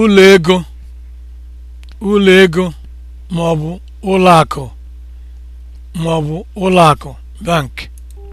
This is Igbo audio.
ụlọ ego ụlọ ego ma ọ bụ ụlọ akụ ma ọ bụ ụlọ akụ bank